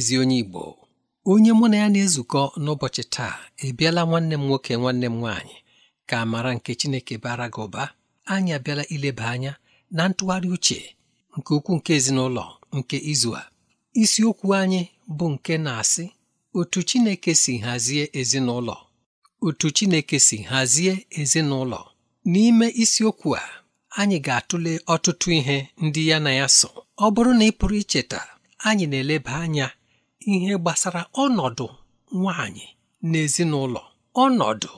ezi onye Igbo onye mụ na ya na-ezukọ n'ụbọchị taa ebiela nwanne m nwoke nwanne m nwaanyị ka mara nke Chineke bara gị ụba anyị abịala ileba anya na ntụgharị uche nke ukwuu nke ezinụlọ nke izu a isiokwu anyị bụ nke na-asị otu Chineke si hazie ezinụlọ otu Chineke si hazie ezinụlọ n'ime isiokwu a anyị ga-atụle ọtụtụ ihe ndị ya na ya so ọ bụrụ na ị pụrụ icheta anyị na-eleba anya ihe gbasara ọnọdụ nwanyị n'ezinụlọ ọnọdụ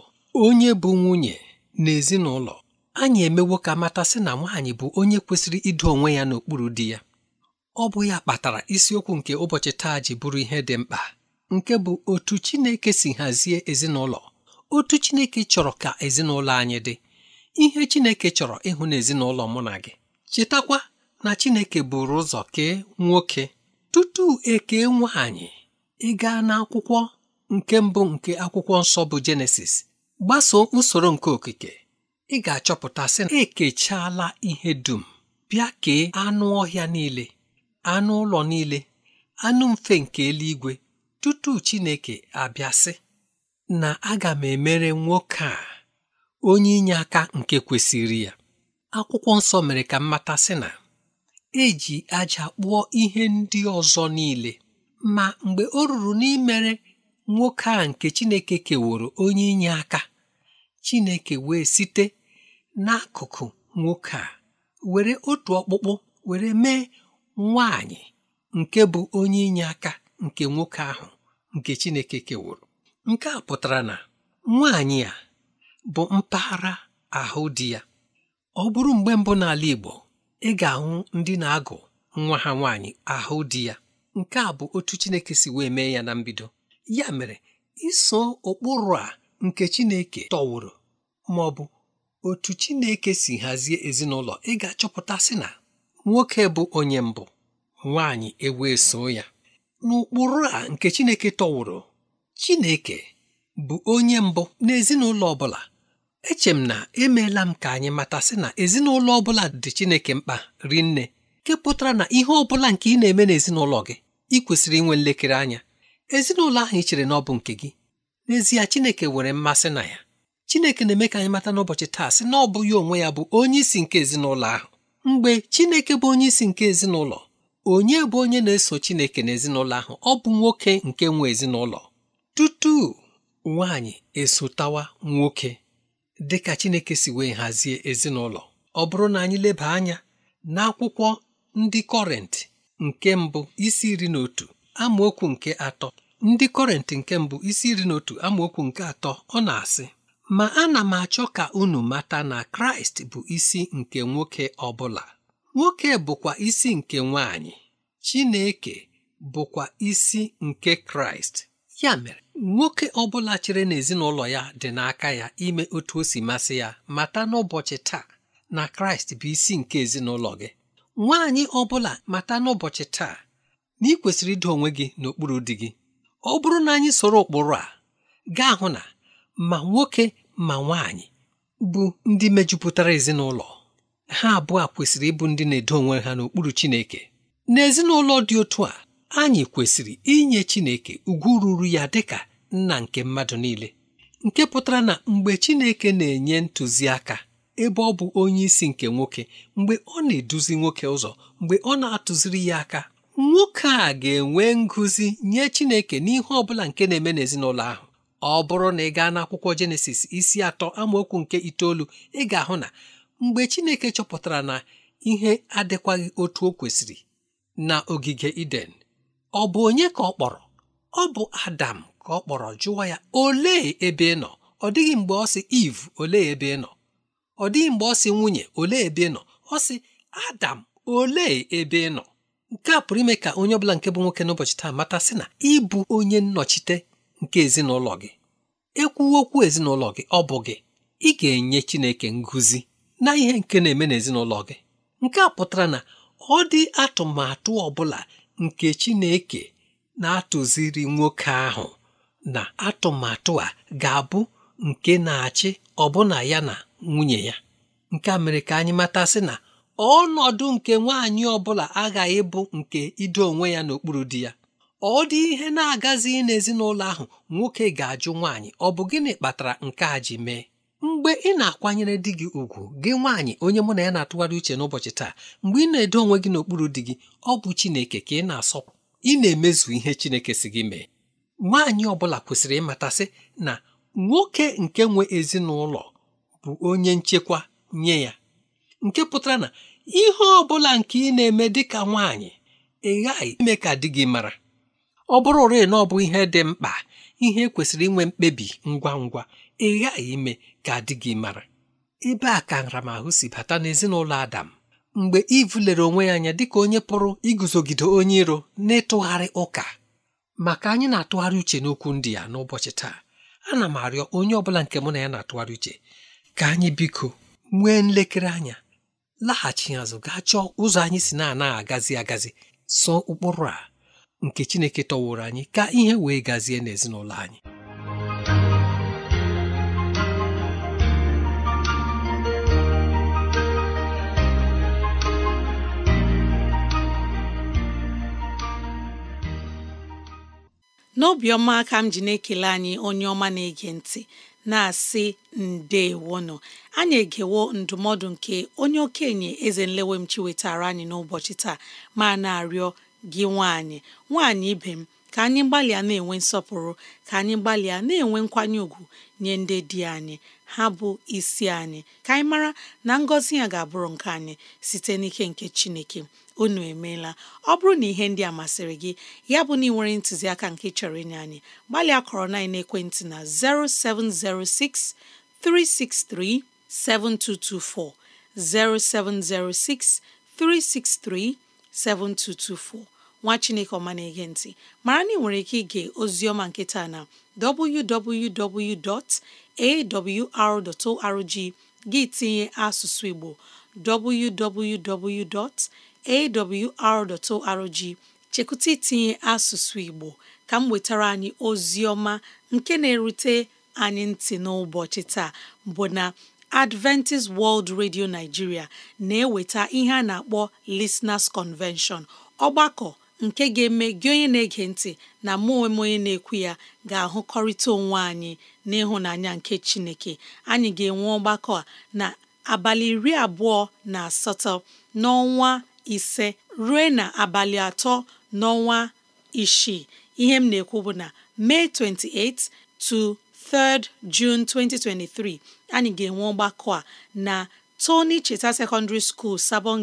onye bụ nwunye n'ezinụlọ anyị emewo ka matasị na nwaanyị bụ onye kwesịrị ido onwe ya n'okpuru di ya ọ bụ ya kpatara isiokwu nke ụbọchị taa ji bụrụ ihe dị mkpa nke bụ otu Chineke si hazie ezinụlọ otu Chineke chọrọ ka ezinụlọ anyị dị ihe Chineke chọrọ ịhụ n'ezinụlọ mụ na gị chetakwa na Chineke buru ụzọ kee nwoke tutu eke nwaanyị ị gaa n'akwụkwọ nke mbụ nke akwụkwọ nsọ bụ jenesis gbasoo usoro nke okike ị ga-achọpụta sị na ekechaala ihe dum bịa kee anụ ọhịa niile anụ ụlọ niile anụ mfe nke eluigwe tutu Chineke abịasị na aga m emere nwoke a onye inye aka nke kwesịrị ya akwụkwọ nsọ mere ka mmata sị na eji aja kpụọ ihe ndị ọzọ niile ma mgbe o ruru n'imere nwoke a nke Chineke keworo onye inye aka Chineke wee site n'akụkụ nwoke a were otu ọkpụkpụ were mee nwanyị nke bụ onye inye aka nke nwoke ahụ nke Chineke keworo nke a pụtara na nwaanyị a bụ mpaghara ahụ di ya ọ bụrụ mgbe mbụ n'ala Igbo ị ga-ahụ ndị na-agụ nwa ha nwaanyị ahụ di ya nke a bụ otu Chineke si wee mee ya na mbido ya mere iso ụkpụrụ a nke Chineke tọwụrụ ma ọ bụ otu Chineke si hazie ezinụlọ ị ga achọpụtasị na nwoke bụ onye mbụ nwaanyị ewee so ya n'ụkpụrụ a nke Chineke tọwụrụ Chineke bụ onye mbụ n'ezinụlọ ọ bụla eche m na emeela m ka anyị matasị na ezinụlọ ọ bụla dị Chineke mkpa ri nne nke pụtara na ihe ọ bụla nke ị na-eme n'ezinụlọ gị ị kwesịrị inwe nlekere anya ezinụlọ ahụ ị chere na ọ bụ nke gị n'ezie Chineke nwere mmasị na ya Chineke na-eme ka anyị mata n'ụbọchị taa sị na ọ bụ ya onwe ya bụ onye isi nke ezinụlọ ahụ mgbe Chineke bụ onye isi nke ezinụlọ onye bụ onye na-eso Chineke n'ezinụlọ ahụ ọ bụ nwoke nke nwe ezinụlọ tutu nwaanyị esotawa nwoke Dịka Chineke si wee hazie ezinụlọ ọ bụrụ na anyị leba anya n'akwụkwọ ndị kọrentị nke mbụ isi iri na otu amaokwu nke atọ ndị kọrentị nke mbụ isi iri na otu amaokwu nke atọ ọ na-asị ma ana m achọ ka unu mata na Kraịst bụ isi nke nwoke ọbụla nwoke bụkwa isi nke nwaanyị Chineke bụkwa isi nke Kraịst ya mere nwoke ọ bụla chere na ezinụlọ ya dị n'aka ya ime otu o si masị ya mata n'ụbọchị taa na kraịst bụ isi nke ezinụlọ gị nwaanyị ọ bụla mata n'ụbọchị taa na ị kwesịrị ido onwe gị n'okpuru di gị ọ bụrụ na anyị soro ụkpụrụ a gaa hụ na ma nwoke ma nwaanyị bụ ndị mejupụtara ezinụlọ ha abụọ kwesịrị ịbụ ndị na-edo onwe ha n'okpuru Chineke n'ezinụlọ dị otu a anyị kwesịrị inye Chineke ugwu ruru ya dịka nna nke mmadụ niile nke pụtara na mgbe Chineke na-enye ntụziaka ebe ọ bụ onye isi nke nwoke mgbe ọ na-eduzi nwoke ụzọ mgbe ọ na-atụziri ya aka nwoke a ga-enwe ngụzi nye Chineke n'ihe ọ bụla nke na-eme n'ezinụlọ ahụ ọ bụrụ na ị gaa n'akwụkwọ Jenesis isi atọ amaokwu nke itoolu ị ga-ahụ na mgbe Chineke chọpụtara na ihe adịkwaghị otu o kwesịrị na ogige Iden ọ bụ onye ka ọ kpọrọ ọ bụ adam ka ọ kpọrọ jụwa ya olee ebe ị nọ ọ dịghị mgbe ọ sị iv olee ebe ị nọ ọ dịghị mgbe ọ sị nwunye olee ebe ị nọ ọ sị adam olee ebe ị nọ nke a pụrụ ime ka onye ọbụla nke bụ nwoke n'ụbọchị taa mata sị na ịbụ onye nnọchite nke ezinụlọ gị ekwu okwu ezinụlọ gị ọ bụ gị ị ga-enye Chineke nguzi na ihe nke na-eme n'ezinụlọ gị nke a pụtara na ọ dị atụmatụ ọ bụla nke Chineke na-atụziri nwoke ahụ na atụmatụ a ga-abụ nke na-achị ọbụna ya na nwunye ya nke a mere ka anyị matasị na ọnọdụ nke nwaanyị ọbụla aghaghị bụ nke ido onwe ya n'okpuru di ya ọ dị ihe na-agazi n'ezinụlọ ahụ nwoke ga-ajụ nwaanyị ọ gịnị kpatara nke a ji mee mgbe ị na-akwanyere di gị ugwu gị nwaanyị onye mụ na ya na-atụgharị uche n'ụbọchị taa mgbe ị na-edo onwe gị n'okpuru di gị ọ bụ Chineke ka ị na-asọpụ ị na-emezu ihe Chineke si gị mee nwaanyị ọ bụla kwesịrị ịmatasị na nwoke nke nwe ezinụlọ bụ onye nchekwa nye ya nke pụtara na ihe ọ bụla nke ị na-eme dị ka nwaanyị ị ghaghị ime ka di gị mara ọ bụrụ ụre na ọ bụ ihe dị mkpa ihe e kwesịrị inwe mkpebi ngwa ngwa ị ghaghị ime ka adị gị mara ebe a ka nramahụ si bata n'ezinụlọ Adam mgbe Iv lere onwe ya anya dịka onye pụrụ iguzogide onye iro na-ịtụgharị ụka maka anyị na-atụgharị uche n'okwu ndị ya n'ụbọchị taa ana m arịọ onye ọbụla nke mụ na ya na-atụgharị uche ka anyị biko nwee nlekere anya laghachi azụ gaa chọọ ụzọ anyị si na-anaghị agazi agazi so ụkpụrụ a nke Chineke tọwụrụ anyị ka ihe wee gazie n'ezinụlọ anyị n'obiọma aka m ji na-ekele anyị onye ọma na-ege ntị na-asị ndeewono anyị egewo ndụmọdụ nke onye okenye eze nlewemchi wetara anyị n'ụbọchị taa ma na-arịọ gị nwaanyị nwaanyị ibe m ka anyị gbalịa na-enwe nsọpụrụ ka anyị gbalịa na-enwe nkwanye ùgwù nye ndị di anyị ha bụ isi anyị ka anyị mara na ngọzi ya ga-abụrụ nke anyị site n'ike nke Chineke unu emeela ọ bụrụ na ihe ndị a masịrị gị ya bụ na ị ntụziaka nke chọrọ inye anyị gbalịa kọrọ na ekwentị na 0706 363 7224 0706 363 7224 nwa Chineke ọma na-ege ntị mara na ị nwere ike ige ozioma nketa na www.awr.org gị tinye asụsụ Igbo awr.org chekụta itinye asụsụ Igbo ka m nwetara anyị ozi ọma nke na-erute anyị ntị n'ụbọchị taa bụ na Adventist World Radio Nigeria na-eweta ihe a na-akpọ Listeners Convention ọgbakọ nke ga-eme gị onye na-ege ntị na mụ onwe m onye na-ekwu ya ga-ahụkọrịta onwe anyị n'ịhụnanya nke Chineke anyị ga-enwe ọgbakọ a na abalị iri abụọ na asatọ n'ọnwa ise ruo na abalị atọ n'ọnwa isii ihe m na-ekwu bụ na May 28 to 3 June 2023 anyị ga-enwe ọgbakọ a na Tony Cheta Secondary School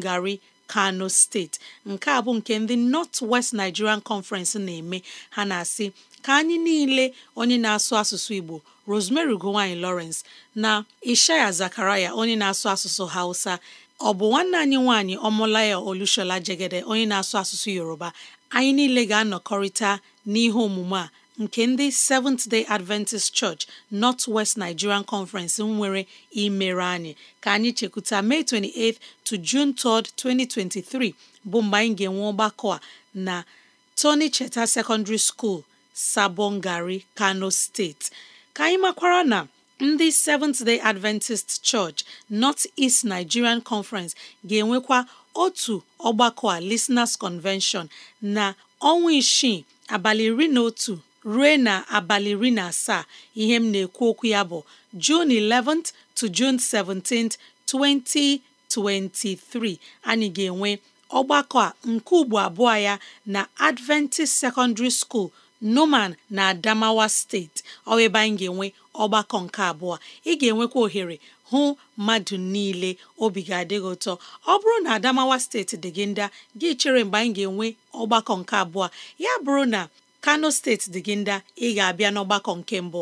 gari Kano steeti nke a bụ nke ndị North West Nigerian Conference na-eme ha na-asị ka anyị niile onye na-asụ asụsụ Igbo Rosemary ugowanyi Lawrence na Ishaya Zakaraya onye na-asụ asụsụ Hausa ọ bụ nwanne anyị nwaanyị ọmụlaya Olushola Jegede onye na-asụ asụsụ Yoruba anyị niile ga-anọkọrịta n'ihe omume a nke ndị Seventh Day Adventist Church North West Nigerian Conference nwere imere anyị ka anyị chekwuta May 28 to June 3, 2023 bụ mgbe anyị ga-enwe ọgbakọ a na Tony Cheta Secondary School, Sabon Kano steeti. ka anyị makwara na ndị Seventh Day Adventist Church North East Nigerian Conference ga-enwekwa otu ọgbakọ a Listeners Convention na ọnwa isii abalị iri na otu ruo na abalị iri na asaa ihe m na-ekwu okwu ya bụ June 11th to June 17th 2023 anyị ga-enwe ọgbakọ a nke ugbo abụọ ya na Adventist Secondary School. noman na Adamawa steeti ọ anyị ga-enwe ọgbakọ nke abụọ ị ga-enwekwa ohere hụ mmadụ niile obi ga adịghị ụtọ ọ bụrụ na Adamawa steeti dị gị ndị gị chere mgbe anyị ga-enwe ọgbakọ nke abụọ ya bụrụ na Kano steeti dị gị ndị ị ga-abịa n'ọgbakọ nke mbụ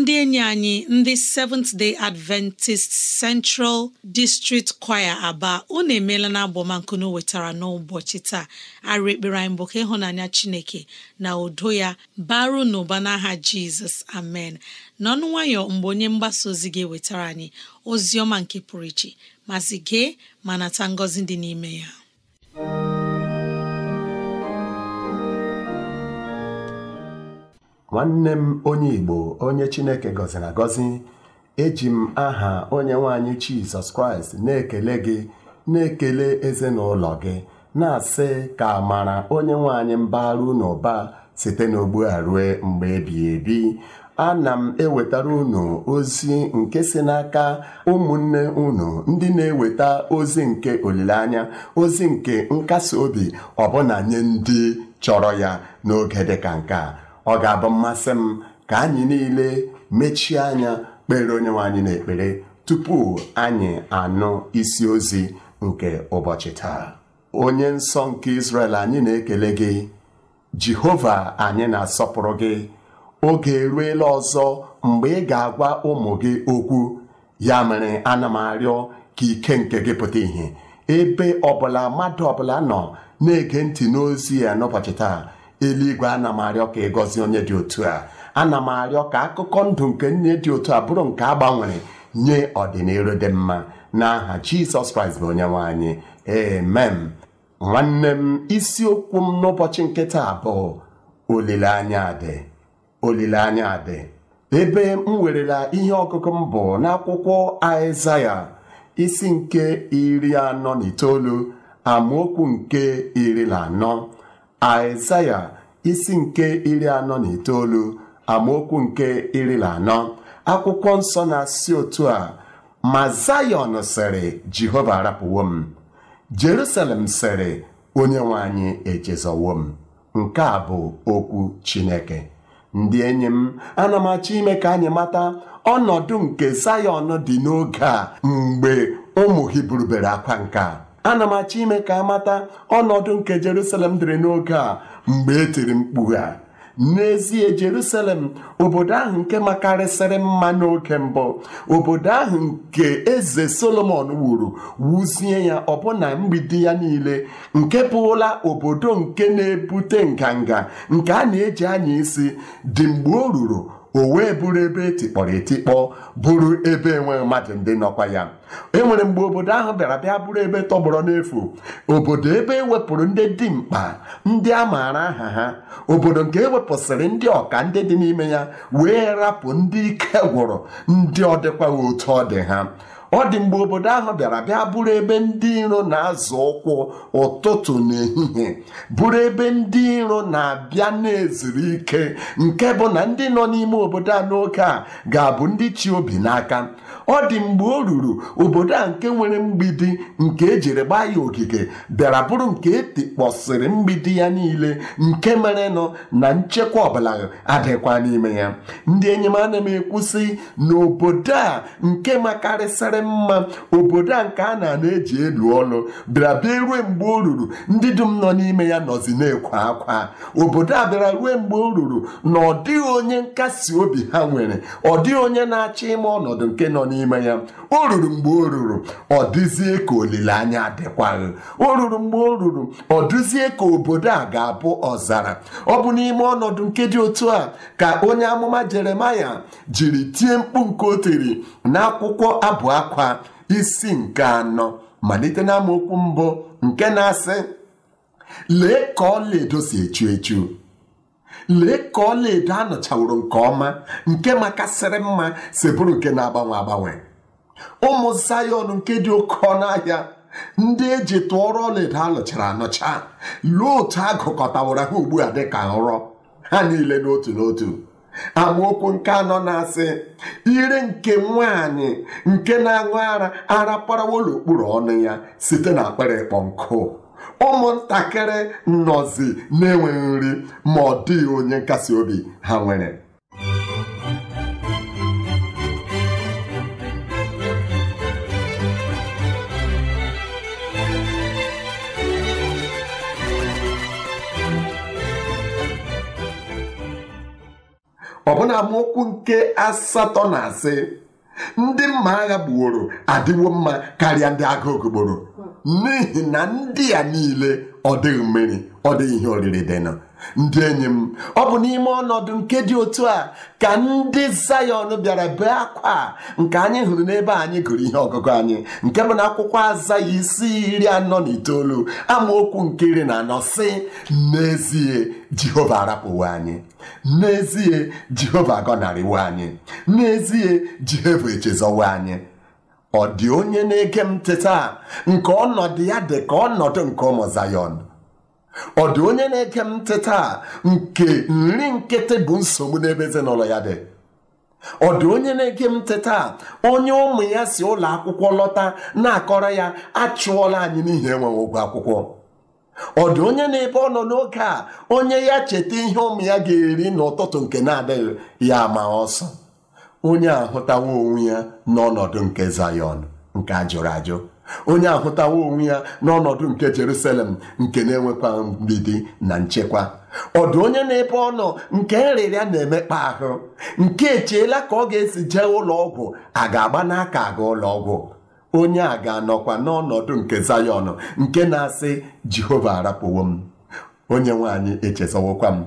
ndị enyi anyị ndị Seventh Day Adventist Central District Choir Aba unu emeela na abọmankunu wetara n'ụbọchị taa arụ ekpere anyị bụ ka ịhụnanya Chineke na udo ya baru n'ụba n'aha Jizọs amen n'ọnụ nwayọ mgbe onye mgbasa ozi ga-ewetara anyị ozi ọma nke pụrụ iche mazi gee ma nata ngọzi dị n'ime ya nwanne m onye Igbo onye Chineke gọziri agọzi eji m aha onye nwanyị Jizọs Kraịst na-ekele gị na-ekele ezinụlọ gị na-asị ka amara onye nwanyị mbara unu ụba site n'ogbu a rue mgbe ebighị ebi ana m ewetara unu ozi nke si n'aka ụmụnne unu ndị na-eweta ozi nke olileanya ozi nke nkasi obi ọbụna nye ndị chọrọ ya n'oge dịka nke a ọ ga-abụ mmasị m ka anyị niile mechie anya kpere onye anyị na-ekpere tupu anyị anụ isi ozi nke ụbọchị taa onye nsọ nke Israel anyị na-ekele gị Jehova anyị na-asọpụrụ gị oge eruela ọzọ mgbe ị ga-agwa ụmụ gị okwu ya mere ana ka ike nke gị pụta ìhè ebe ọbụla mmadụ ọbụla nọ na-ege ntị n'ozi ya n'ụbọchị taa eluigwe ana m arịọ ka ị gọzie onye dị otu a ana m arịọ ka akụkọ ndụ nke nne dị otu a bụrụ nke a gbanwere nye ọdịnihu dị mma n'aha jizọs kraịst bụ onyenwe anyị emem nwanne m isiokwu m n'ụbọchị nkịta abụọ olileanya dị olileanya dị ebe m werela ihe ọgụgụ m bụ n'akwụkwọ aịzaya isi nke iri anọ na itoolu amaokwu nke iri na anọ Aịzaya isi nke iri anọ na itoolu amaokwu nke iri na anọ akwụkwọ nsọ na-asị otu a ma Zayọn sịrị Jehova arapụwo m Jerusalem sịrị onye nwe anyị echezọwo m nke a bụ okwu Chineke ndị enyi m ana ime ka anyị mata ọnọdụ nke Zayọn dị n'oge a mgbe ụmụ Hibru bere akwa nke a ana m achọ ime ka amata ọnọdụ nke Jerusalem dịrị n'oge a mgbe e tiri mkpu ha. n'ezie Jerusalem obodo ahụ nke makarịsịrị mma n'oge mbụ obodo ahụ nke eze Solomon wuru wuzie ya ọbụna mgbidi ya niile nke bụla obodo nke na-ebute nganga nke a na-eji anya isi dị mgbe o ruru o wee bụrụ ebe etikpọrọ etikpọ bụrụ ebe enweghị mmadụ ndị nọkwa ya enwere mgbe obodo ahụ bịara bịa bụrụ ebe tọgbọrọ n'efu obodo ebe ewepụrụ ndị dimkpa ndị a maara aha ha obodo nke ewepụsịrị ndị ọka ndị dị n'ime ya wee rapụ ndị ike gwụrụ ndị ọ otu ọ dị ha ọ dị mgbe obodo ahụ bịara bịa bụrụ ebe ndị iro na-azụ ụkwụ ụtụtụ na ehihie bụrụ ebe ndị iro na-abịa na eziri ike nke bụ na ndị nọ n'ime obodo a n'oge a ga-abụ ndị chi obi n'aka ọ dị mgbe o ruru obodo a nke nwere mgbidi nke ejiri gbaa ya ogige bịara bụrụ nke etikpọsịrị mgbidi ya niile nke mere nọ na nchekwa ọbụla adịkwa n'ime ya ndị enyi m ana m ekwusị n'obodo a nke makarịsịrị mma obodo a nke a na-eji elu ọlụ bịara bịa rue mgbe o ruru ndị dum nọ n'ime ya nọzi na-ekwe akwa obodo a bịara rue mgbe o ruru na ọ dịghị onye nkasi obi ha nwere ọ dịghị onye na-achọ ime ọnọdụ nke nọ n'ime ya o ruru mgbe o ruru ọ dịzie ka olileanya adịkwaghị o ruru mgbe o ruru ọ dịzie ka obodo a ga-abụ ọzara ọ bụ n'ime ọnọdụ nke dị otu a ka onye amụma Jeremaya jiri tie mkpu nke o tiri n'akwụkwọ abụ akwa nakwa isi nke anọ malite na amaokwu mbụ nke na-asị lee ka ọlaedo si echu echu lee ka ọlaedo anọchaworo nke ọma nke makasịrị mma si bụrụ nke na-agbanwe agbanwe ụmụ zayọn nke dị oke ọnụ ahịa ndị eji tụọrọ ọlaedo alụchara anọcha, luo otu agụkọtawara ha ugbu a dịka nrọ ha niile n'otu n'otu amaokwu nke anọ na-asị ire nke nwaanyị nke na-aṅụ ara ara parawolokpuru ọnụ ya site na akpara ịkpọ nkụ ụmụntakịrị nọzi na-enweghị nri ma ọ dịghị onye nkasi obi ha nwere ọbụna amaokwu nke asatọ na asị ndị mma agha gbuoro adịwo mma karịa ndị agha ogogboro n'ihi na ndị a niile ọ dịghị mmeri ọ dị ihe oriri dị ndị enyi m ọ bụ n'ime ọnọdụ nke dị otu a ka ndị Zayọn bịara bee akwa nke anyị hụrụ n'ebe anyị gụrụ ihe ọgụgụ anyị nke bụ na akwụkwọ aza ya isi iri anọ na itoolu amaokwu nke iri na anọ sị: n'ezie Jehova arapụwo anyị n'ezie Jehova agọnarịwo anyị n'ezie Jehova echezowe anyị ọ dị onye na-ege m teta taa nke ọnọdụ ya dị ka ọnọdụ nke ụmụ Zayọn ọ dị onye na-ege m ntị nke nri nkịtị bụ nsogbu n'ebe ezinụlọ ya dị ọ dị onye na-ege m ntị onye ụmụ ya si ụlọ akwụkwọ lọta na-akọrọ ya achụọla anyị n'ihi enweghị ụgwọ akwụkwọ ọ dị onye na-ebe ọ nọ n'oge a onye ya cheta ihe ụmụ ya ga-eri n'ụtụtụ nke na-adịghị ya ma ọsọ onye ahụtawo onwe ya n'ọnọdụ nke Zayọn nke ajụrụ ajụ onye ahụtawo onwe ya n'ọnọdụ nke Jerusalem nke na-enwekwa mgbidi na nchekwa ọdụ onye na epe ọnụ nke nrịrịa na-emekpa ahụ nke echeela ka ọ ga-esi jee ụlọ ọgwụ a ga-agba n'aka aga ụlọ ọgwụ onye a ga-anọkwa n'ọnọdụ nke Zayọn nke na-asị Jehova arapụwo m onye nwaanyị echezọwokwa m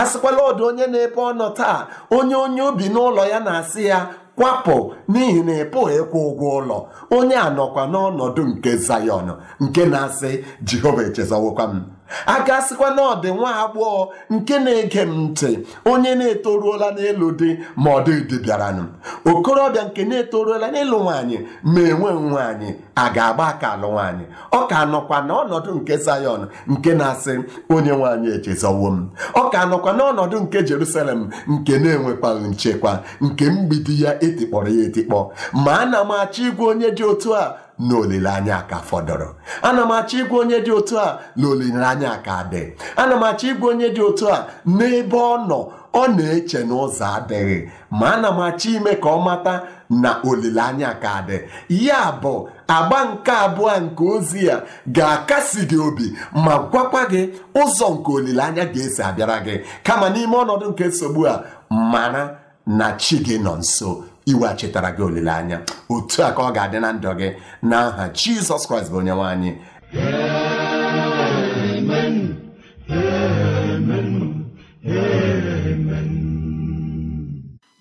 asịkwala ọdụ onye na epe ọnụ taa onye onye obi n'ụlọ ya na-asị ya kwapụ n'ihi na ị pụghị ịkwụ ụgwọ ụlọ onye a nọkwa n'ọnọdụ nke Zayọn nke na-asị Jehova echezọwokwa m a gasịkwa na ọ dị nwa agbọghọ nke na-ege m ntị onye na-etoruola n'elu dị ma ọ dịdị bịaranụ okorobịa nke na-etoruola n'elu nwaanyị ma enwe nwaanyị a ga-agba aka alụ nwaanyị ọ ka nọkwa n'ọnọdụ nke Zayọn nke na-asị onye nwaanyị echezọwo m ọ ka nọkwa n'ọnọdụ nke Jerusalem nke na-enwekwaghị nchekwa nke mgbidi ya etikpọrọ ya etikpọ ma a na m achọ ịgwa onye dị otu a na olileanya ka fọdụrụ ana m achọ ịgwa onye dị otu a na olileanya ka dị ana m achọ ịgwa onye dị otu a n'ebe ọ nọ ọ na-eche n'ụzọ adịghị ma ana m achọ ime ka ọ mata na olileanya ka dị ya bụ agba nke abụọ nke ozi ya ga-akasi gị obi ma gwakwa gị ụzọ nke olileanya ga-esi abịara gị kama n'ime ọnọdụ nke nsogbu a mara na chi gị nọ nso iwe chetara gị olileanya otu a ka ọ ga-adị na ndụ gị na aha Jizọs Kraịst bụ onyenwe anyị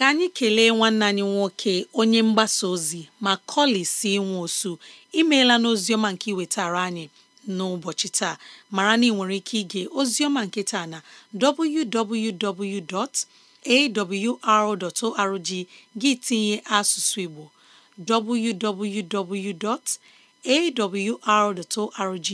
ka anyị kelee nwanne anyị nwoke onye mgbasa ozi ma si nwe osu imeela n'oziọma nke iwetara anyị n'ụbọchị taa mara na ị nwere ike ige ozioma nke taa na www.awr.org gị tinye asụsụ Igbo www.awr.org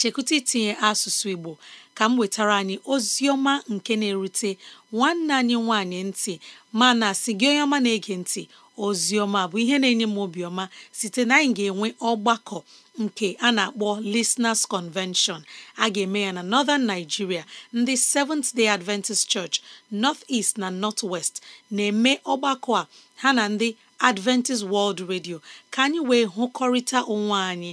chekwụta itinye asụsụ Igbo ka m wetara anyị ozi ọma nke na-erute nwanne anyị nwanyị ntị mana si gị onye ọma na-ege ntị ozi ọma bụ ihe na-enye m obiọma site na anyị ga-enwe ọgbakọ nke a na-akpọ Listeners Convention a ga-eme ya na Northern Nigeria ndị Seventh Day Adventist Church North East na North West na-eme ọgbakọ a ha na ndị Adventist World Radio ka anyị wee hụkọrịta onwe anyị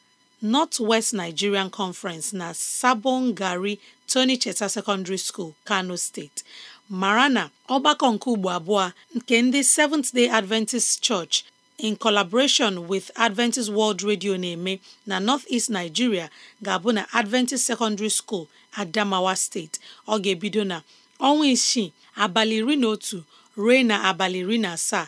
North West Nigerian Conference na Sabon Gari Tony Cheta Secondary School, Kano State mara na ọgbakọ nke ugbo abụọ nke ndị Seventh Day Adventist Church in collaboration with Adventist World Radio na-eme na North-East Nigeria ga-abụ na Adventist Secondary School Adamawa State ọ ga-ebido na ọnwa isii abalị iri na otu ruo na abalị iri na asaa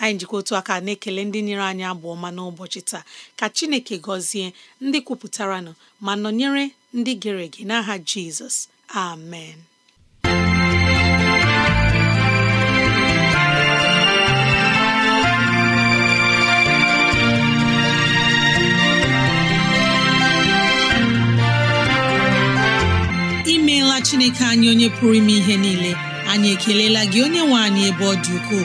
anyị jikọ otu aka na-ekele ndị nyere anyị abụ ọma n'ụbọchị taa ka chineke gọzie ndị kwupụtaranụ ma nọnyere ndị gere ege n'aha jizọs amen imeela chineke anyị onye pụrụ ime ihe niile anyị ekelela gị onye nwe anyị ebe ọ dị ukwuu